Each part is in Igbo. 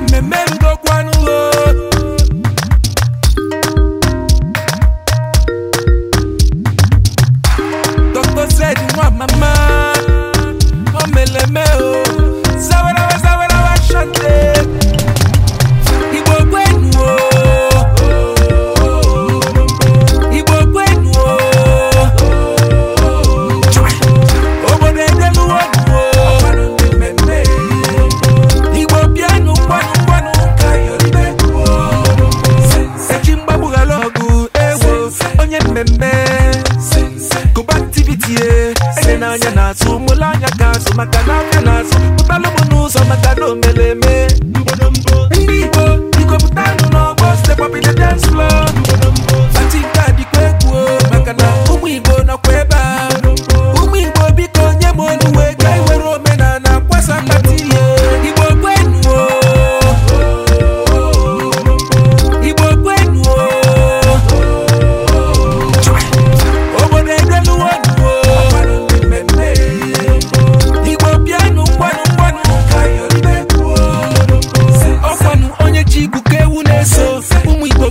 mmemme mmemme kụba ntibitie ede na anya na-atụ mụlụ anya ga-azụ maka na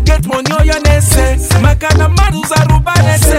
get money oh, ya na-ese maka na mmadụ zara ụba na-ese